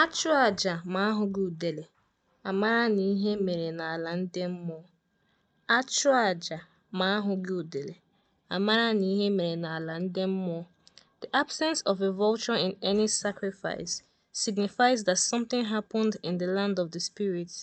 Achụ chụọ aja ma a gị udele, a mara na ihe mere n'ala ndị mmụọ. A The absence of a vulture in any sacrifice signifies that something happened in the land of the spirits.